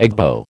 Egbo